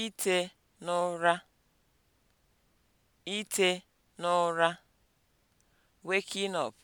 Ite n'ụra Ite n'ụra (waking up)